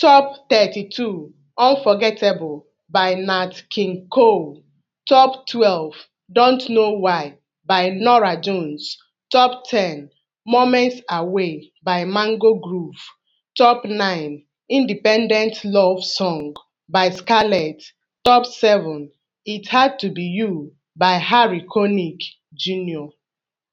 Top 32 "Unforgettable" by Nat King Cole, Top 12 "Don't Know Why" by Norah Jones, Top 10 "Moments Away" by Mango Groove, Top 9 "Independent Love Song" by Scarlett, Top 7 "It Had to Be You" by Harry Connick Jr.